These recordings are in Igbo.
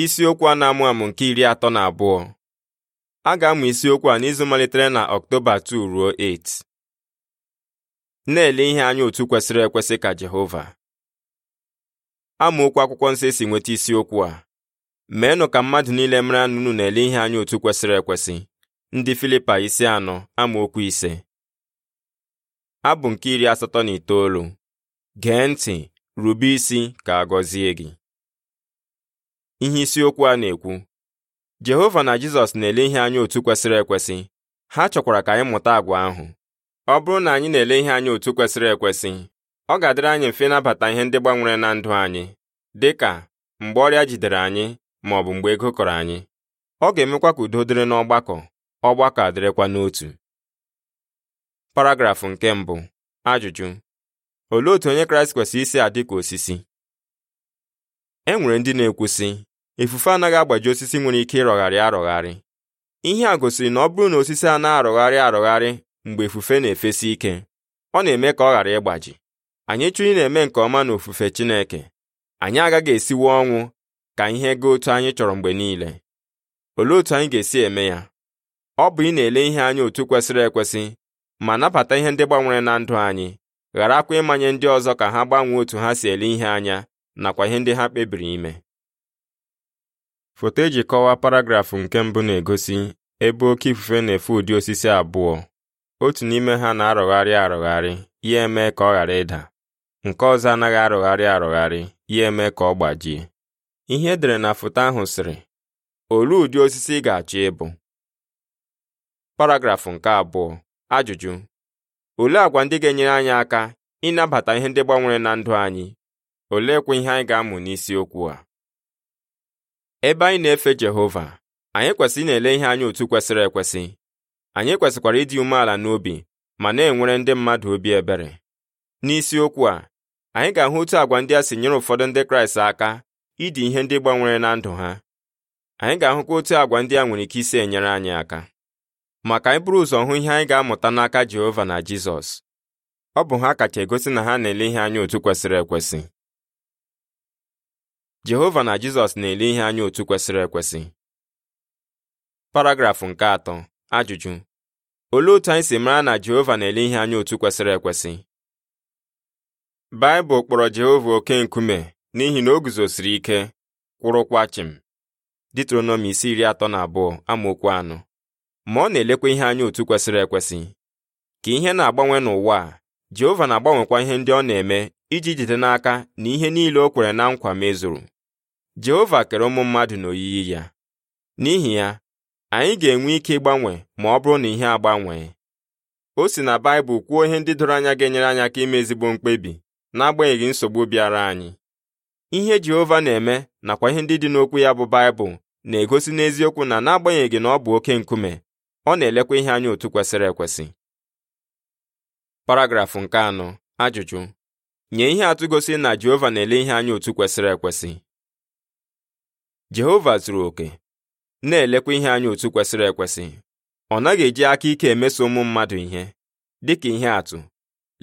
isiokwu a na-amụ amụ nke iri atọ na abụọ a ga-amụ isiokwu a n'izu malitere na ọktoba 2 ruo 8 na-ele ihe anya otu kwesịrị ekwesị ka Jehova amaokwu akwụkwọ nsọ esi nweta isiokwu a meenụ ka mmadụ niile mara anụnụ na-ele ihe anya otu kwesịrị ekwesị ndị Filipa isi anọ amaokwu ise abụ nke iri asatọ na itoolu gee ntị rube isi ka a gọzie gị ihe isiokwu a na-ekwu Jehova na Jizọs na-ele ihe anya otu kwesịrị ekwesị ha chọkwara ka anyị mụta agwa ahụ ọ bụrụ na anyị na-ele ihe anya otu kwesịrị ekwesị ọ ga-adịrị anyị mfe ịnabata ihe ndị gbanwere na ndụ anyị dị ka mgbe ọrịa jidere anyị ma ọ bụ mgbe ego kọrọ anyị ọ ga-emekwa ka udo dịrị n'ọgbakọ ọgbakọ adịrịkwa n'otu paragrafụ nke mbụ ajụjụ olee otu onye kraịst kwesịrị isi adị ka osisi e nwere ndị na-ekwusị ifufe anaghị agbaji osisi nwere ike ịrọgharị arọgharị ihe a gosiri na ọ bụrụ na osisi a na-arọgharị arọgharị mgbe ifufe na-efesi ike ọ na-eme ka ọ ghara ịgbaji anyị chụrụ na-eme nke ọma na ofufe Chineke anyị agaghị esiwe ọnwụ ka ihe ga otu anyị chọrọ mgbe niile olee otu anyị ga-esi eme ya ọ bụ ị na-ele ihe anya otu kwesịrị ekwesị ma nabata ihe ndị gbanwere na ndụ anyị gharakwa ịmanye ndị ọzọ ka ha gbanwee otu ha si ele ihe anya nakwa ihe ndị ha kpebiri ime Foto eji kọwaa paragrafụ nke mbụ na-egosi ebe oke ifufe na-efe ụdị osisi abụọ otu n'ime ha na-arọgharị arọgharị ya eme ka ọ ghara ịda nke ọzọ anaghị arọgharị arọgharị ya eme ka ọ gbajie ihe edere na foto ahụ sịrị olee ụdị osisi ị ga-achọ ịbụ paragrafụ nke abụọ ajụjụ olee agwa ndị ga-enyere anyị aka ịnabata ihe ndị gbanwere na ndụ anyị oleekwa ihe anyị ga-amụ n'isiokwu a ebe anyị na-efe Jehova anyị kwesịrị na-ele ihe anya otu kwesịrị ekwesị anyị kwesịkwara ịdị umeala n'obi ma na-enwere ndị mmadụ obi ebere n'isiokwu a anyị ga-ahụ otu agwa ndị a si nyere ụfọdụ ndị Kraịst aka ịdị ihe ndị gbanwere na ndụ ha anyị ga-ahụkwa otu agwa ndị a nwere ike isi enyere anyị aka maka anyị bụrụ ụzọ hụ ihe anyị ga-amụta n'aka Jehova na Jizọs ọ bụ ha kacha egosi na ha na-ele ihe anya otu kwesịrị ekwesị Jehova na Jizọs na-ele ihe anya otu kwesịrị ekwesị paragrafụ nke atọ ajụjụ olee otu anyị si mara na Jehova na-ele ihe anya otu kwesịrị ekwesị Baịbụl kpọrọ Jehova oke nkume n'ihi na o guzosiri ike kwụrụkwa chịm Ditronomi isi iri atọ na abụọ amaokwu anọ ma ọ na-elekwa ihe anya otu kwesịrị ekwesị ka ihe na-agbanwe n'ụwa a Jehova na-agbanwekwa ihe ndị ọ na-eme iji jide n'aka na ihe niile o kwere na nkwa mezuru Jehova kere ụmụ mmadụ n'oyiyi ya n'ihi ya anyị ga-enwe ike ịgbanwe ma ọ bụrụ na ihe agbanwee o si na Baịbụl kwuo ihe ndị doro anya ga-enyere anyị aka ime ezigbo mkpebi n'agbanyeghị nsogbu bịara anyị ihe Jehova na-eme nakwa ihe ndị dị n'okwu ya bụ Baịbụl na-egosi n'eziokwu na n'agbanyeghị na ọ bụ oke nkume ọ na-elekwa ihe anya otu kwesịrị ekwesị paragrafụ nke anọ ajụjụ nye ihe atụ gosi na Jehova na-ele ihe anya otu kwesịrị ekwesị Jehova zuru oke na-elekwa ihe anya otu kwesịrị ekwesị ọ naghị eji aka ike emeso ụmụ mmadụ ihe dịka ihe atụ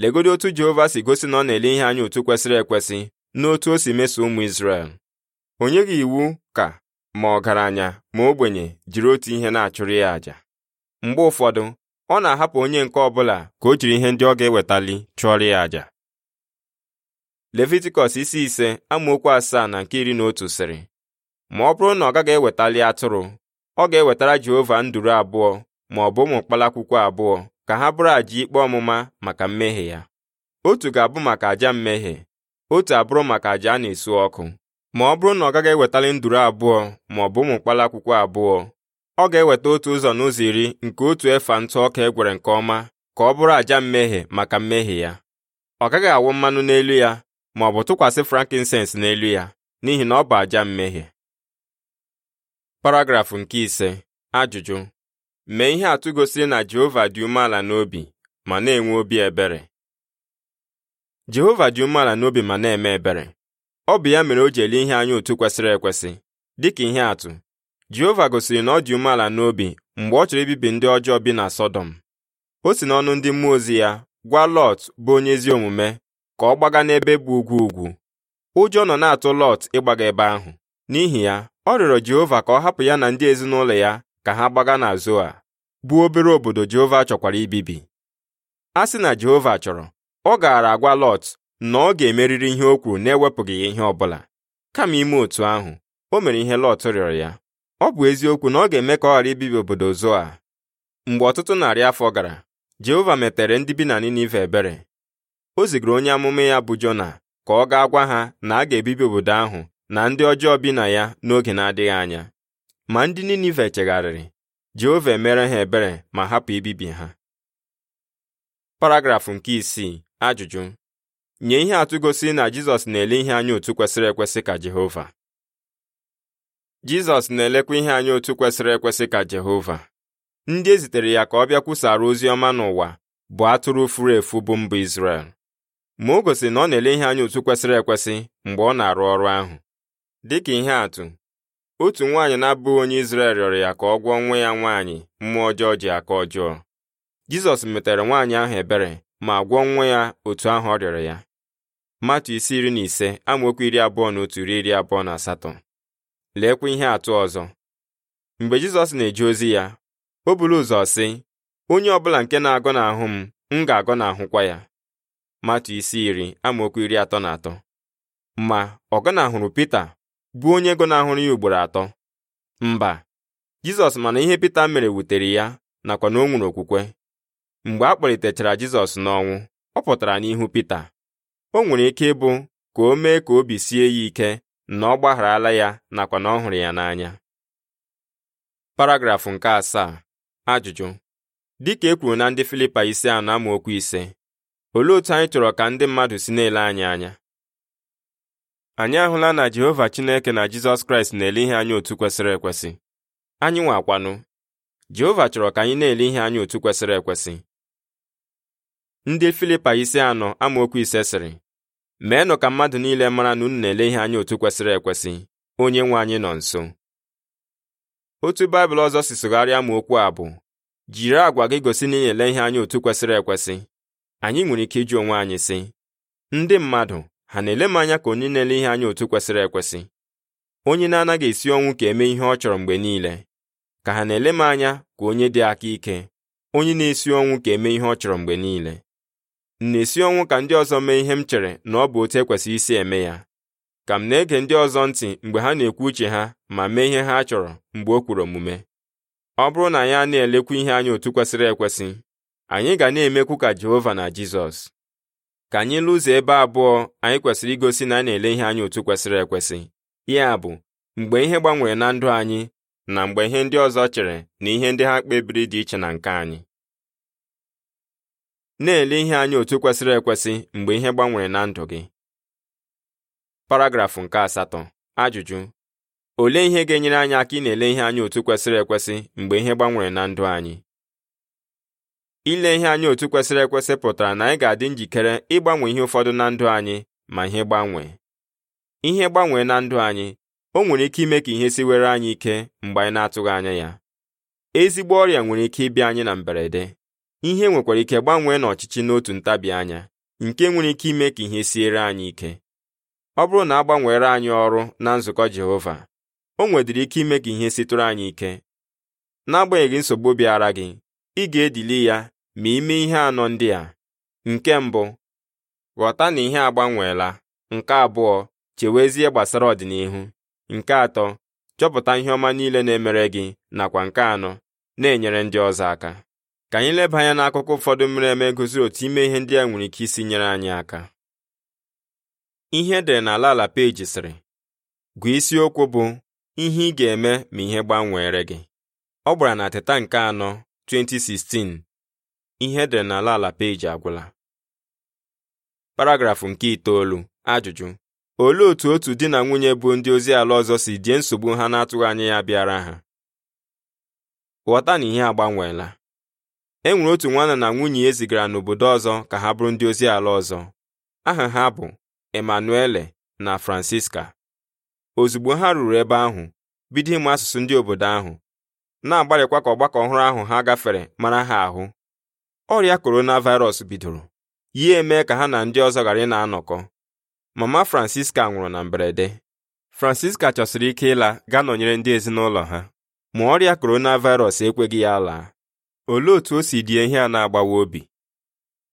legodo otu Jehova si gosi na ọ na-ele ihe anya otu kwesịrị ekwesị n'otu o si meso ụmụ Izrel Onye gị iwu ka ma ọgaranya ma ogbenye jiri otu ihe na-achụrụ ya àjà mgbe ụfọdụ ọ na-ahapụ onye nke ọbụla ka o jiri ihe ndị ọ ga-ewetali chụọrọ ya àjà levitikọs isi ise amaokwu asaa na nke iri na otu sịrị ma ọ bụrụ na ọ gaghị ewetali atụrụ ọ ga-ewetara Jehova nduru abụọ ma ọ bụ ụmụ mkpalakwụkwọ abụọ ka ha bụrụ àjà ikpe ọmụma maka mmehie ya otu ga-abụ maka àjà mmehie otu abụrụ maka àjà a na-esu ọkụ ma ọ bụrụ na ọ gaghị ewetali nduru abụọ ma ọ bụ ụmụ mkpalakwụkwọ abụọ ọ ga-eweta otu ụzọ n'ụzọ iri nke otu efa ntụ ọka e gwere nke ọma ka ọ bụrụ àjà mmehie maka mmehie ya ọ gaghị awụ mmanụ n'elu ya ma ọ bụ tụkwasị frankincense n'elu ya n'ihi na ọ bụ aja mmehie paragrafụ nke ise ajụjụ mee ihe atụ gosiri na Jehova dị umeala n'obi ma na-enwe obi ebere Jehova dị umeala n'obi ma na-eme ebere ọ bụ ya mere o ji ele ihe anya otu kwesịrị ekwesị dịka ihe atụ Jehova gosiri na ọ dị umeala n'obi mgbe ọ chọrọ ibibi ndị ọjọọ bi na Sọdọm o si n'ọnụ ndị mmụọ ozi ya gwa Lọt bụ onye ezi omume ka ọ gbaga n'ebe bụ ugwu ugwu ụjọ nọ na-atụ Lọt ịgbaga ebe ahụ n'ihi ya ọ rịọrọ Jehova ka ọ hapụ ya na ndị ezinụlọ ya ka ha gbaga na Zoa bụ obere obodo Jehova chọkwara ibibi a sị na Jehova chọrọ ọ gaara agwa Lọt na ọ ga emeriri ihe o kwuru na-ewepụghị ya ihe ọ bụla kama ime otu ahụ o mere ihe Lọt rịọrọ ya ọ bụ eziokwu na ọ ga-eme ka ọ ghara ibibi obodo Zoa mgbe ọtụtụ narị afọ gara Jehova metere ndị bi na Ninive ebere o zigara onye amụma ya bụ Jona ka ọ gaa gwa ha na a ga-ebibi obodo ahụ na ndị ọjọọ bi na ya n'oge na-adịghị anya ma ndị Ninive chegharịrị Jehova emere ha ebere ma hapụ ibibi ha paragrafụ nke isii ajụjụ nye ihe atụ gosi na Jizọs na-ele ihe anya otu kwesịrị ekwesị ka Jehova Jizọs na-elekwa ihe anya otu kwesịrị ekwesị ka Jehova ndị e zitere ya ka ọ bịa kwusara ozi ọma n'ụwa bụ atụrụ furu efu bụ mba Izrel ma o gosiri na ọ na-ele ihe anya otu kwesịrị ekwesị mgbe ọ na-arụ ọrụ ahụ dịka ihe atụ otu nwaanyị na-abụghị onye Izrel rịọrọ ya ka ọ gwọọ nwa ya nwaanyị mmụọ ọjọọ ji aka ọjọọ Jizọs metere nwaanyị ahụ ebere ma gwọọ nwa ya otu ahụ ọ rịọrọ ya Matu isi iri na ise amaokwu iri abụọ na otu ruo iri abụọ na asatọ leekwa ihe atụ ọzọ mgbe Jizọs na-eje ozi ya o buru ụzọ sị onye ọbụla nke na-agọ n'ahụ m m ga-agọ n'ahụkwa ya matu isi iri amaokwu iri atọ na atọ ma Ọgana hụrụ Pita bụ onye gọnahụrụ ya ugboro atọ mba Jizọs mana ihe Pita mere wutere ya nakwa na o nwere okwukwe mgbe a kpọlitechara Jizọs n'ọnwụ ọ pụtara n'ihu Pita o nwere ike ịbụ ka o mee ka obi sie ya ike na ọ gbagharala ya nakwa na ọ hụrụ ya n'anya paragrafụ nke asaa ajụjụ dịka e kwuru na ndị Filipa isi anọ amaokwu ise olee otu anyị chọrọ ka ndị mmadụ si na-ele anyị anya anyị ahụla na Jehova Chineke na Jizọs Kraịst na-ele ihe anya otu kwesịrị ekwesị anyị nwakwanụ Jehova chọrọ ka anyị na-ele ihe anya otu kwesịrị ekwesị ndị Filipa isi anọ amaokwu ise sịrị meenụ ka mmadụ niile mara na unu na-ele ihe anya otu kwesịrị ekwesị onye nwe anyị nọ nso otu Baịbụl ọzọ si sụgharịa ma okwu a bụ jiri àgwà gị gosi na ị na-ele ihe anya otu kwesịrị ekwesị anyị nwere ike iji onwe anyị sị ndị mmadụ ha na-ele m anya ka onye na-ele ihe anya otu kwesịrị ekwesị onye na-anaghị esi ọnwụ ka eme ihe ọ chọrọ mgbe niile ka ha na-ele m anya ka onye dị aka ike onye na-esi ọnwụ ka eme ihe ọ chọrọ mgbe niile m na-esi ọnwụ ka ndị ọzọ mee ihe m chere na ọ bụ otu ekwesị isi eme ya ka m na-ege ndị ọzọ ntị mgbe ha na-ekwu uche ha ma mee ihe ha chọrọ mgbe o kwuru omume ọ bụrụ na anyị a na-elekwa ihe anya otu kwesịrị ekwesị anyị ga na-emekwu ka Jehova na Jizọs ka anyị lụzie ebe abụọ anyị kwesịrị igosi na a na-ele ihe anyị otu kwesịrị ekwesị ya bụ mgbe ihe gbanwere na ndụ anyị na mgbe ihe ndị ọzọ chere na ihe ndị ha kpebiri dị iche na nke anyị na-ele ihe anyị otu kwesịrị ekwesị mgbe ihe gbanwere na ndụ gị paragrafụ nke asatọ ajụjụ olee ihe ga-enyere anyị aka ị na-ele ihe anyị otu kwesịrị ekwesị mgbe ihe gbanwere na ndụ anyị ile ihe anyị otu kwesịrị ekwesị pụtara na anyị ga-adị njikere ịgbanwe ihe ụfọdụ na ndụ anyị ma ihe gbanwee ihe gbanwee na ndụ anyị o nwere ike ime ka ihe siwere anyị ike mgbe anyị na-atụghị anya ya ezigbo ọrịa nwere ike ịbịa anyị na mberede ihe nwekwara ike gbanwee n'ọchịchị n'otu ntabi anya nke nwere ike ime ka ihe siere anyị ike ọ bụrụ na a gbanweere anyị ọrụ na nzukọ Jehova o nwedịrị ike ime ka ihe sitụrụ anyị ike n'agbanyeghị nsogbu bịara gị ị ga-edili ya ma ime ihe anọ ndị a nke mbụ ghọta na ihe agbanweela nke abụọ chewezie gbasara ọdịnihu nke atọ chọpụta ihe ọma niile na-emere gị nakwa nke anọ na-enyere ndị ọzọ aka ka anyị leba anya n'akụkọ ụfọdụ mere eme gosiri otu ime ihe ndị a nwere ike isi nyere anyị aka ihe e dere na ala ala peji sịrị gụọ isiokwu bụ ihe ị ga-eme ma ihe gbanweere gị ọ gbara na teta nke anọ 2016 ihe dị n'ala ala peji agwụla paragrafụ nke itoolu ajụjụ olee otu otu di na nwunye bụ ndị ozi ala ọzọ si die nsogbu ha na-atụghị anya ya bịara ha ghọta na ihe agbanweela e nwere otu nwanna na nwunye e zigara n'obodo ọzọ ka ha bụrụ ndị ozi ala ọzọ aha ha bụ Emanuele na Francisca ozugbo ha ruru ebe ahụ bido ịmụ asụsụ ndị obodo ahụ na-agbalịkwa ka ọgbakọ ọhụrụ ahụ ha gafere mara ha ahụ ọrịa coronavirus bidoro ya eme ka ha na ndị ọzọ ghara ị na-anọkọ mama francisca nwụrụ na mberede francisca chọsiri ike ịla gaa nọnyere ndị ezinụlọ ha ma ọrịa coronavirus ekweghị ya laa olee otu o si die ihe a na-agbawa obi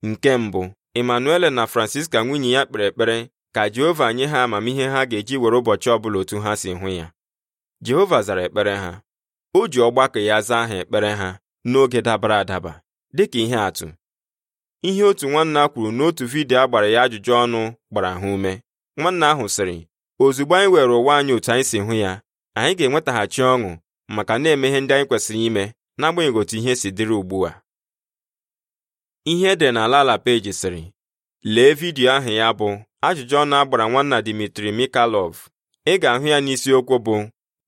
nke mbụ Emanuele na francisca nwunye ya kpere ekpere ka jehova nye ha amamihe ha ga-eji were ụbọchị ọbụla otu ha si hụ ya jehova zara ekpere ha o ji ọgbakọ ya zaa ha ekpere ha n'oge dabara adaba dịka ihe atụ ihe otu nwanna kwuru n'otu vidiyo a gbara ya ajụjụ ọnụ gbara ha ume nwanna ahụ sịrị ozugbo anyị were ụwa anyị otu anyị si hụ ya anyị ga-enwetaghachi ọṅụ maka na-eme ihe ndị anyị kwesịrị ime n'agbanyeghị otu ihe si dịrị ugbu a ihe edere n'ala ala peji sịrị lee vidiyo ahụ ya bụ ajụjụ ọnụ a gbara nwanna Dimitri Mikalov ị ga-ahụ ya n'isiokwu bụ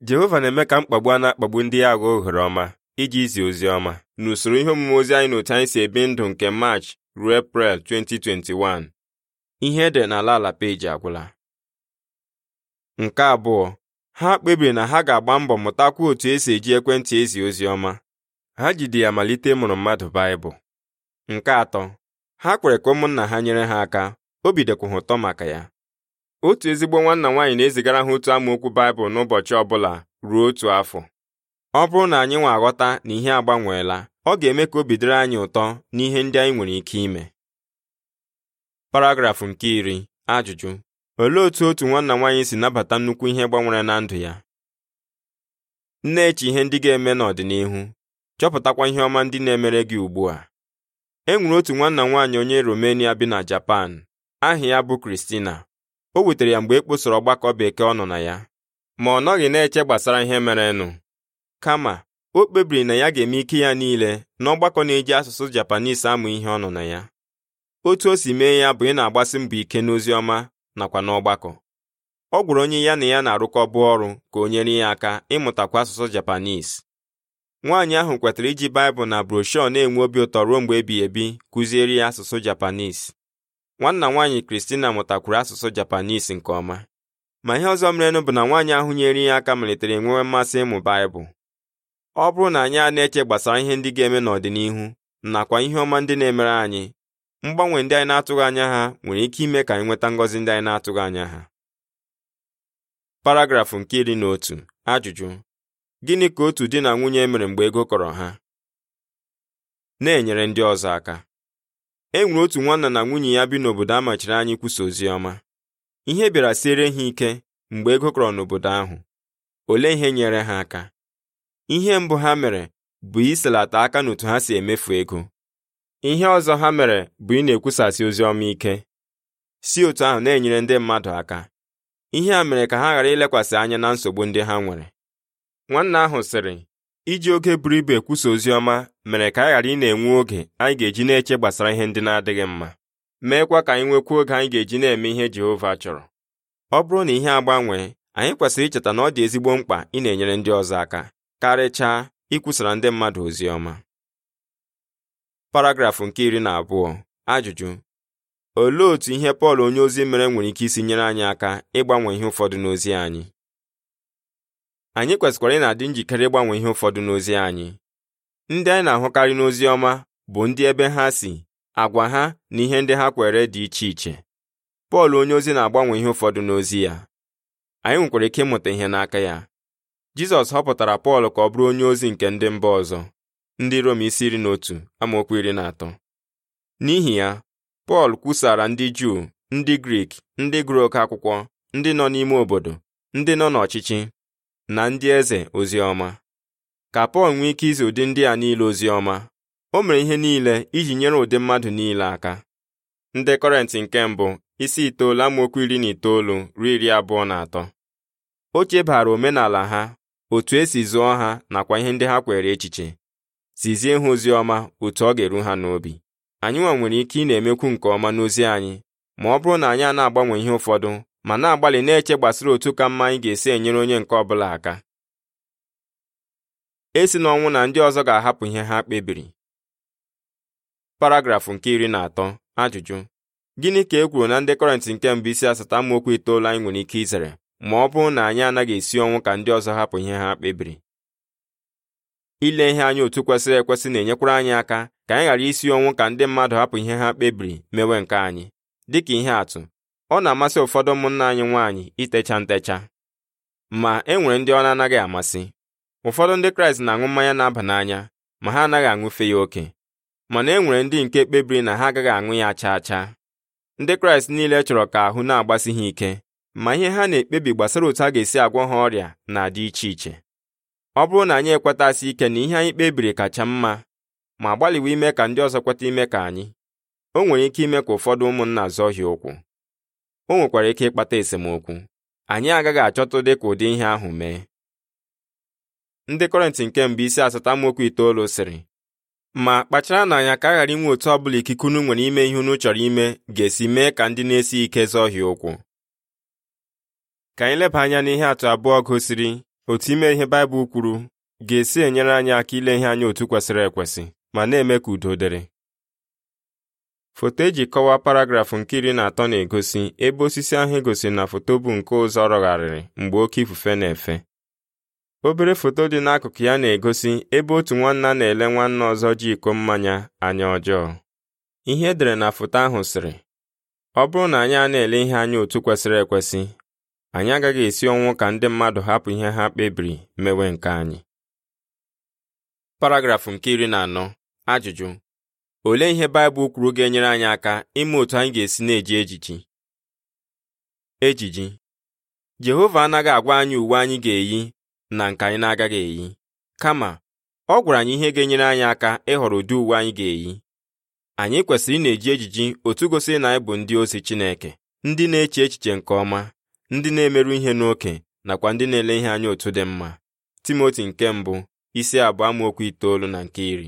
Jehova na-eme ka mkpagbu a na-akpagbu ndị ya aghọ ohere ọma iji izi ozi ọma n'usoro ihe omume ozi anyị n'otu anyị si ebi ndụ nke March ruo Eprel 2021 ihe ede n'ala ala peji agwụla nke abụọ ha kpebiri na ha ga-agba mbọ mụtakwa otu esi eji ekwentị ezi ozi ọma ha jide ya malite ịmụrụ mmadụ Baịbụl nke atọ ha kwere ka ụmụnna ha nyere ha aka obi dịkwuha ụtọ maka ya otu ezigbo nwanna nwaanyị na-ezigara ha otu amaokwu Baịbụl n'ụbọchị ọ bụla ruo otu afọ ọ bụrụ na anyị nwa aghọta na ihe agbanweela ọ ga-eme ka obi dịrị anyị ụtọ n'ihe ndị anyị nwere ike ime paragrafụ nke iri ajụjụ olee otu otu nwanna nwaanyị si nabata nnukwu ihe gbanwere na ndụ ya na-eche ihe ndị ga-eme n'ọdịnihu chọpụtakwa ihe ọma ndị na-emere gị ugbu a e nwere otu nwanna nwaanyị onye Romania bi na Japan aha ya bụ Kristina o wetara ya mgbe e kposoro ọgbakọ bekee ọ nọ na ya ma ọ nọghị na-eche gbasara ihe merenụ kama o kpebiri na ya ga-eme ike ya niile n'ọgbakọ na-eji asụsụ Japanis amụ ihe ọ nọ na ya otu o si mee ya bụ ị na-agbasi mbọ ike n'ozi ọma nakwa n'ọgbakọ ọ gwụrụ onye ya na ya na arụkọ bụ ọrụ ka o nyere ya aka ịmụtakwa asụsụ Japanis nwaanyị ahụ kwetara iji Baịbụl na broshuọ na-enwe obi ụtọ ruo mgbe ebighị ebi kụziere ya asụsụ Japanis nwanna nwaanyị Kristina mụtakwuru asụsụ Japanis nke ọma ma ihe ọzọ merenụ bụ na nwaanyị ahụ nyere ya aka malitere enwewe mmasị ịmụ Baịbụl ọ bụrụ na anyị a na-eche gbasara ihe ndị ga-eme n'ọdịnihu nakwa ihe ọma ndị na-emere anyị mgbanwe ndị anyị na-atụghị anya ha nwere ike ime ka anyị nweta ngọzi ndị anyị na-atụghị anya ha paragrafụ nke iri na otu ajụjụ gịnị ka otu di na nwunye mere mgbe ego kọrọ ha na-enyere ndị ọzọ aka e nwere otu nwanna na nwunye ya bi n'obodo a machiri anyị kwusa ozi ọma ihe bịara siere ha ike mgbe ego kọrọ n'obodo ahụ olee ihe nyere ha aka ihe mbụ ha mere bụ iselata aka n'otu ha si emefu ego ihe ọzọ ha mere bụ ị na-ekwusasị ozi ọma ike si otu ahụ na-enyere ndị mmadụ aka ihe a mere ka ha ghara ilekwasị anya na nsogbu ndị ha nwere nwanne ahụ sịrị iji oge buru ibu ekwusa ozi ọma mere ka anyị ghara ị na-enwe oge anyị ga-eji na-eche gbasara ihe ndị na-adịghị mma meekwa ka anyị nwekwa oge anyị ga-eji na-eme ihe Jehova chọrọ ọ bụrụ na ihe agbanwee anyị kwesịrị icheta na ọ dị ezigbo mkpa ị na-enyere ndị ọzọ aka karịchaa ikwusara ndị mmadụ ozi ọma paragrafụ nke iri na abụọ ajụjụ olee otu ihe Pọl onye ozi mere nwere ike isi nyere anyị aka ịgbanwe ihe ụfọdụ n'ozi anyị anyị kwesịkwara ị na-adị njikere ịgbanwe ihe ụfọdụ n'ozi anyị ndị anyị na-ahụkarị n'ozi ọma bụ ndị ebe ha si agwa ha na ihe ndị ha kwere dị iche iche Pọl onye ozi na-agbanwe ihe ụfọdụ n'ozi ya anyị nwekwara ike ịmụta ihe n'aka ya jizọs họpụtara pọl ka ọ bụrụ onye ozi nke ndị mba ọzọ ndị rom isi iri na otu amaokwu iri na atọ n'ihi ya pọl kwusara ndị juu ndị grik ndị gụrụ oke akwụkwọ ndị nọ n'ime obodo ndị nọ n'ọchịchị na ndị eze ozi ọma ka pọl nwee ike izi ụdị ndị a niile ozi ọma o mere ihe niile iji nyere ụdị mmadụ niile aka ndị kọrentị nke mbụ isi itoolu amaokwu iri na itoolu ruo iri abụọ na atọ o chebara omenala ha otu esi zụọ ha nakwa ihe ndị ha kwere echiche zizie ha ozi ọma otu ọ ga-eru ha n'obi anyị nwa nwere ike ị na-emekwu nke ọma n'ozi anyị ma ọ bụrụ na anyị a na-agbanwe ihe ụfọdụ ma na-agbalị na-eche gbasara otu ka mma anyị ga-esi enyere onye nke ọbụla aka esi n'ọnwụ na ndị ọzọ ga-ahapụ ihe ha kpebiri paragrafụ nke iri na atọ ajụjụ gịnị ka e kwuru na ndị kọrentị nke mbụ isi asata amaokwu itoolu anyị nwere ike izere ma ọ bụrụ na anyị anaghị esi ọnwụ ka ndị ọzọ hapụ ihe ha kpebiri ile ihe anyị otu kwesịrị ekwesị na-enyekwara anyị aka ka anyị ghara isi ọnwụ ka ndị mmadụ hapụ ihe ha kpebiri mewe nke anyị dịka ihe atụ ọ na-amasị ụfọdụ ụmụnna anyị nwaanyị itecha ntecha ma e nwere ndị ọ na-anaghị amasị ụfọdụ ndị kraịst na-aṅụ mmanya na-aba n'anya ma ha anaghị aṅụfe ya oke mana e nwere ndị nke kpebiri na ha agaghị aṅụ ya chaa chaa ndị kraịst niile chọrọ ka ahụ na-agbasi ha ike ma ihe ha na-ekpebi gbasara otu a ga-esi agwọ ha ọrịa na-adị iche iche ọ bụrụ na anyị ekwetasị ike na ihe anyị kpebiri kacha mma ma gbalịwa ime ka ndị ọzọ kweta ime ka anyị o nwere ike ime ka ụfọdụ ụmụnna zọhie ụkwụ o nwekwara ike ịkpata esemokwu anyị agaghị achọta dị ka ụdị ihe ahụ mee ndị kọrentị nke mbụ isi asatọ itoolu sịrị ma kpachara na anya ka a ghara inwe otu ọbụla ikike unu nwere ime ihe unu chọrọ ime ga-esi mee ka ndị na-esi ike zọhie ụkwụ ka anyị leba anya n'ihe atụ abụọ gosiri otu ime ihe Baịbụl kwuru ga-esi enyere anyị aka ile ihe anya otu kwesịrị ekwesị ma na-eme ka udo dịrị foto eji kọwaa paragrafụ nke iri na atọ na-egosi ebe osisi ahụ e gosiri na foto bụ nke ụzọ rọgharịrị mgbe oke ifufe na-efe obere foto dị n'akụkụ ya na-egosi ebe otu nwanna na-ele nwanna ọzọ ji iko mmanya anya ọjọọ ihe edere na foto ahụ sịrị ọ bụrụ na anyị a na-ele ihe anya otu kwesịrị ekwesị anyị agaghị esi ọnwụ ka ndị mmadụ hapụ ihe ha kpebiri mewe nke anyị paragrafụ nke iri na anọ ajụjụ olee ihe Baịbụl kwuru ga-enyere anyị aka ime otu anyị ga-esi na-eji ejiji ejiji Jehova anaghị agwa anyị uwe anyị ga-eyi na nke anyị na-agaghị eyi kama ọ gwara anyị ihe ga-enyere anyị aka ịhọrọ ụdị uwe anyị ga-eyi anyị kwesịrị ị na-eji ejiji otu gosiri na anyị bụ ndị ozi Chineke ndị na-eche echiche nke ọma ndị na-emerụ ihe n'oke nakwa ndị na-ele ihe anya otu dị mma timoti nke mbụ isi abụọ amaokwu itoolu na nke iri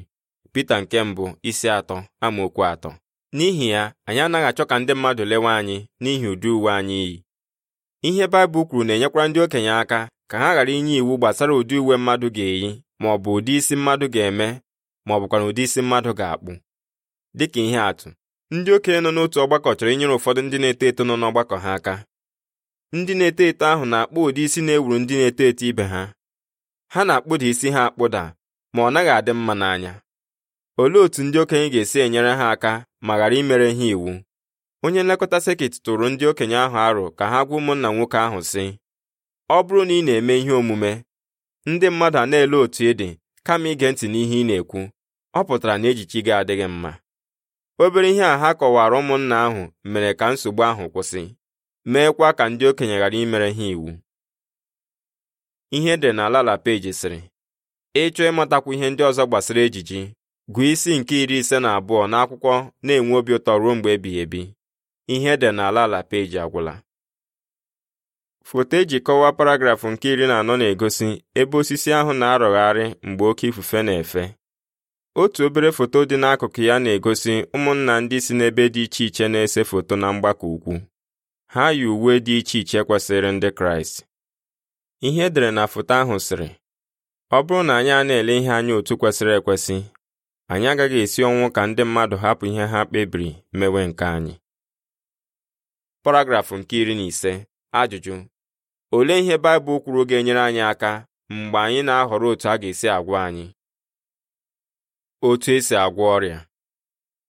pita nke mbụ isi atọ amaokwu atọ n'ihi ya anyị anaghị achọ ka ndị mmadụ lewe anyị n'ihi ụdị uwe anyị yi ihe baịbụl kwuru na-enyekwara ndị okenye aka ka ha ghara inye iwu gbasara ụdị uwe mmadụ ga-eyi ma ọ bụ ụdị isi mmadụ ga-eme ma ọ bụkwa na ụdị isi mmadụ ga-akpụ dịka ihe atụ ndị okenye nọ n'otu ọgbakọ chọrọ inyere ụfọdụ ndị na-eto eto nọ n'ọgbakọ ha aka ndị na-eto eto ahụ na-akpụ ụdị isi na-ewuru ndị na-eto eto ibe ha ha na-akpụda isi ha akpụda ma ọ naghị adị mma n'anya olee otú ndị okenye ga-esi enyere ha aka ma ghara imere ha iwu onye nlekọta sekit tụrụ ndị okenye ahụ arụ ka ha gwa ụmụnna nwoke ahụ sị ọ bụrụ na ị na-eme ihe omume ndị mmadụ a na-ele otu ị dị kama ige ntị n'ihe ị na-ekwu ọ pụtara na ejichi gị adịghị mma obere ihe a ha kọwara ụmụnna ahụ mere ka nsogbu ahụ kwụsị meekwa ka ndị okenye ghara imere ha iwu ihe e dị na lala peji sịrị ịchọ ịmatakwu ihe ndị ọzọ gbasara ejiji gụọ isi nke iri ise na abụọ n'akwụkwọ na-enwe obi ụtọ ruo mgbe ebighị ebi ihe e dị na lala peji agwụla foto eji kọwaa paragrafụ nke iri na anọ na-egosi ebe osisi ahụ na-arọgharị mgbe oke ifufe na-efe otu obere foto dị n'akụkụ ya na-egosi ụmụnna ndị si n'ebe dị iche iche na-ese foto na mgbakọ ukwu ha yi uwe dị iche iche kwesịrị ndị kraịst ihe edere na foto ahụ sịrị ọ bụrụ na anyị a na-ele ihe anya otu kwesịrị ekwesị anyị agaghị esi ọnwụ ka ndị mmadụ hapụ ihe ha kpebiri mewe nke anyị paragrafụ nke iri na ise ajụjụ olee ihe Baịbụl kwuru ga-enyere anyị aka mgbe anyị na-ahọrọ otu a ga-esi agwọ anyị otu esi agwọ ọrịa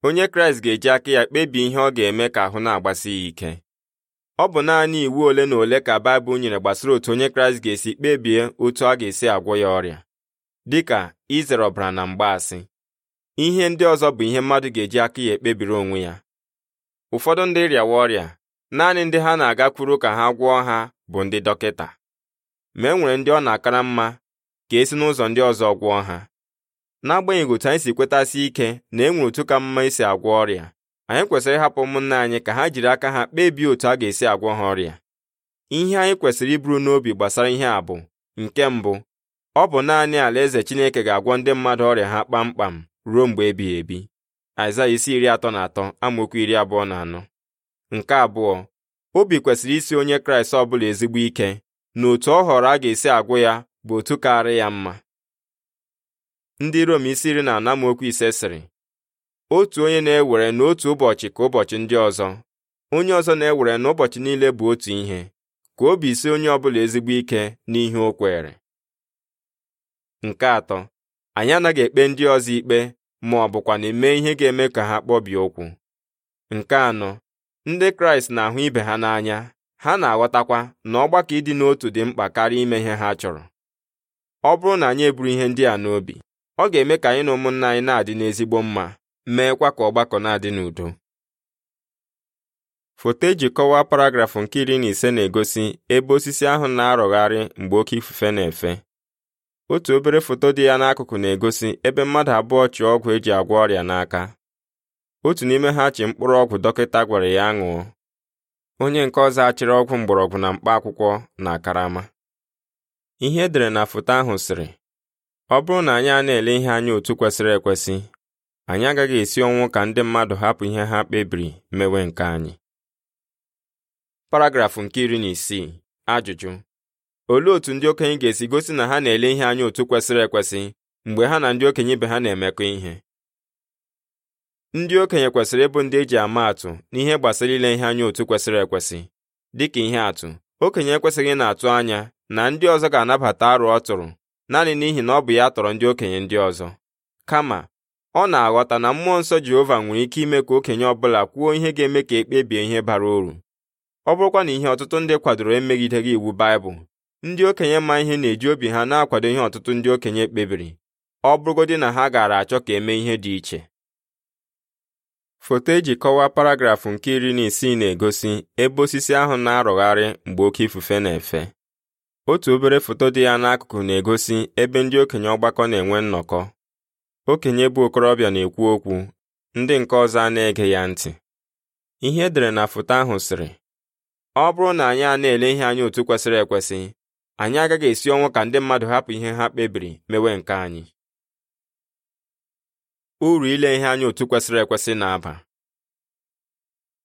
onye Kraịst ga-eji aka ya kpebie ihe ọ ga-eme ka ahụ na-agbasi ya ike ọ bụ naanị iwu ole na ole ka Baịbụl nyere gbasara otu onye Kraịst ga-esi kpebie otu a ga-esi agwọ ya ọrịa dịka izere ọbara na mgbaasị ihe ndị ọzọ bụ ihe mmadụ ga-eji aka ya ekpebiri onwe ya ụfọdụ ndị rịawa ọrịa naanị ndị ha na-agakwuru ka ha gwọọ ha bụ ndị dọkịta ma e nwere ndị ọ na-akara mma ka esi n'ụzọ ndị ọzọ gwọọ ha n'agbanyeghị otu anyị si kwetasị ike na e nwere otu ka mma isi agwọ ọrịa anyị kwesịrị ịhapụ ụmụnna anyị ka ha jiri aka ha kpebie otu a ga-esi agwọ ha ọrịa ihe anyị kwesịrị iburu n'obi gbasara ihe a bụ nke mbụ ọ bụ naanị alaeze Chineke ga-agwọ ndị mmadụ ọrịa ha kpamkpam ruo mgbe ebighị ebi Aịzaya isi iri atọ na atọ amaokwu iri abụọ na anọ nke abụọ obi kwesịrị isi onye Kraịst ọbụla ezigbo ike na otu ọ họrọ a ga-esi agwụ ya bụ otu kaara ya mma ndị Rom isi iri na anọ ise sịrị otu onye na-ewere n'otu ụbọchị ka ụbọchị ndị ọzọ onye ọzọ na-ewere n'ụbọchị niile bụ otu ihe ka obi si onye ọbụla ezigbo ike n'ihe o kwere nke atọ anyị anaghị ekpe ndị ọzọ ikpe ma ọ bụkwa na eme ihe ga-eme ka ha kpọbie okwu nke anọ ndị kraịst na-ahụ ibe ha n'anya ha na-aghọtakwa na ọgbakọ ịdị n'otu dị mkpa karịa ime ihe ha chọrọ ọ bụrụ na anyị eburu ihe ndị a n'obi ọ ga-eme ka anyị na ụmụnna anyị na-adị n'ezigbo mma meekwa ka ọgbakọ na-adị n'udo foto eji kọwaa paragrafụ nke iri na ise na-egosi ebe osisi ahụ na-arọgharị mgbe oke ifufe na-efe otu obere foto dị ya n'akụkụ na-egosi ebe mmadụ abụọ chị ọgwụ eji agwọ ọrịa n'aka otu n'ime ha chị mkpụrụ ọgwụ dọkịta gwara ya ṅụọ onye nke ọzọ achịrị ọgwụ mgbọrọgwụ na mkpa akwụkwọ na karama ihe edere na foto ahụ sịrị ọ bụrụ na anyị a na-ele ihe anya otu kwesịrị ekwesị anyị agaghị esi ọnwụ ka ndị mmadụ hapụ ihe ha kpebiri mewe nke anyị paragrafụ nke iri na isii ajụjụ olee otu ndị okenye ga-esi gosi na ha na-ele ihe anya otu kwesịrị ekwesị mgbe ha na ndị okenye ibe ha na-emekọ ihe ndị okenye kwesịrị ịbụ ndị eji ama atụ n'ihe gbasara ile ihe anya otu kwesịrị ekwesị dịka ihe atụ okenye ekwesịghị na-atụ anya na ndị ọzọ ga-anabata arụ ọ tụrụ naanị n'ihi na ọ bụ ya tọrọ ndị okenye ndị ọzọ kama ọ na-aghọta na mmụọ nsọ Jehova nwere ike ime ka okenye ọbụla kwuo ihe ga-eme ka e kpebie ihe bara uru ọ bụrụkwa na ihe ọtụtụ ndị kwadoro emegideghị iwu Baịbụl ndị okenye ma ihe na-eji obi ha na-akwado ihe ọtụtụ ndị okenye kpebiri ọ bụrụgodị na ha gaara achọ ka emee ihe dị iche foto eji kọwaa paragrafụ nke iri na isii na-egosi ebe osisi ahụ na-arụgharị mgbe oke ifufe na-efe otu obere foto dị ya n'akụkụ na-egosi ebe ndị okenye ọgbakọ na-enwe nnọkọ okenye bụ okorobịa na-ekwu okwu ndị nke ọzọ a na-ege ya ntị ihe edere na foto ahụ sịrị ọ bụrụ na anyị a na-ele ihe anyị otu kwesịrị ekwesị anyị agaghị esi ọnwụ ka ndị mmadụ hapụ ihe ha kpebiri mewe nke anyị uru ile ihe anyị otu kwesịrị ekwesị na-aba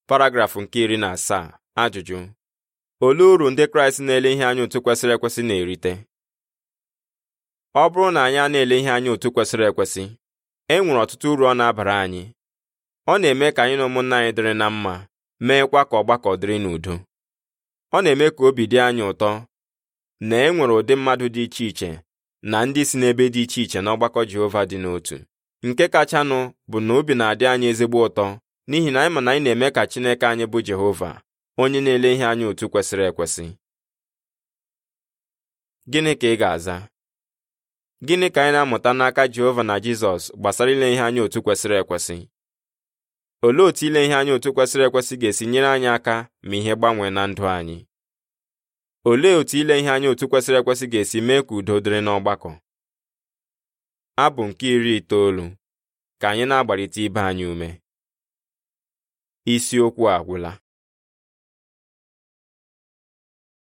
paragrafụ nke iri na asaa ajụjụ olee uru ndị kraịst na-ele ihe anya otu kwesịrị ekwesị na-erite ọ bụrụ na anyị a na-ele ihe anya otu kwesịrị ekwesị e nwere ọtụtụ uru ọ na-abara anyị ọ na-eme ka anyị na ụmụnna anyị dịrị na mma meekwa ka ọgbakọ dịrị n'udo ọ na-eme ka obi dị anyị ụtọ na e nwere ụdị mmadụ dị iche iche na ndị si n'ebe dị iche iche na ọgbakọ Jehova dị n'otu nke kachanụ bụ na obi na-adị anyị ezigbo ụtọ n'ihi na anyị ma na anyị na-eme ka Chineke anyị bụ Jehova onye na-ele ihe anya otu kwesịrị ekwesị gịnị ka ị ga-aza gịnị ka anyị na-amụta n'aka Jehova na Jizọs gbasara ile ihe anya otu kwesịrị ekwesị olee otu ile ihe anya otu kwesịrị ekwesị ga-esi nyere anyị aka ma ihe gbanwee na ndụ anyị olee otu ile ihe anya otu kwesịrị ekwesị ga-esi mee ka udo dịrị n'ọgbakọ abụ nke iri itoolu ka anyị na agbalite ibe anyị ume isiokwu agwụla